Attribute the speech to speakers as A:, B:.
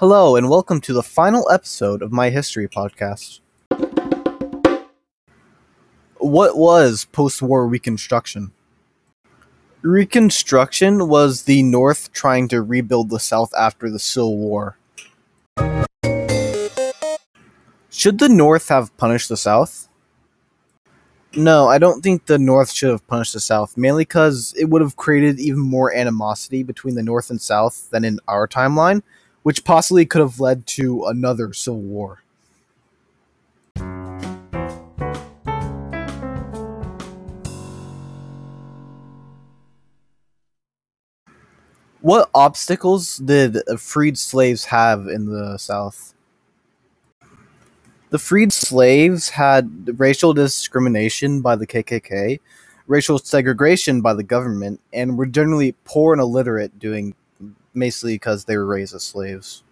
A: Hello, and welcome to the final episode of my history podcast. What was post war Reconstruction? Reconstruction was the North trying to rebuild the South after the Civil War. Should the North have punished the South? No, I don't think the North should have punished the South, mainly because it would have created even more animosity between the North and South than in our timeline which possibly could have led to another civil war. What obstacles did freed slaves have in the South? The freed slaves had racial discrimination by the KKK, racial segregation by the government, and were generally poor and illiterate, doing basically because they were raised as slaves.